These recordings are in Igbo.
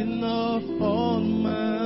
enough on my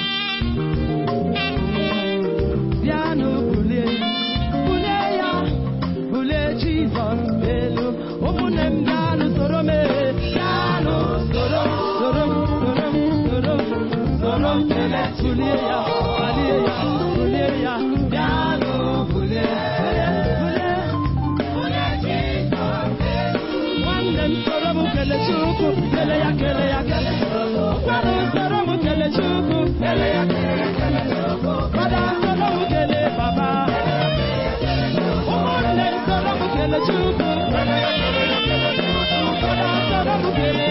Thank ebe.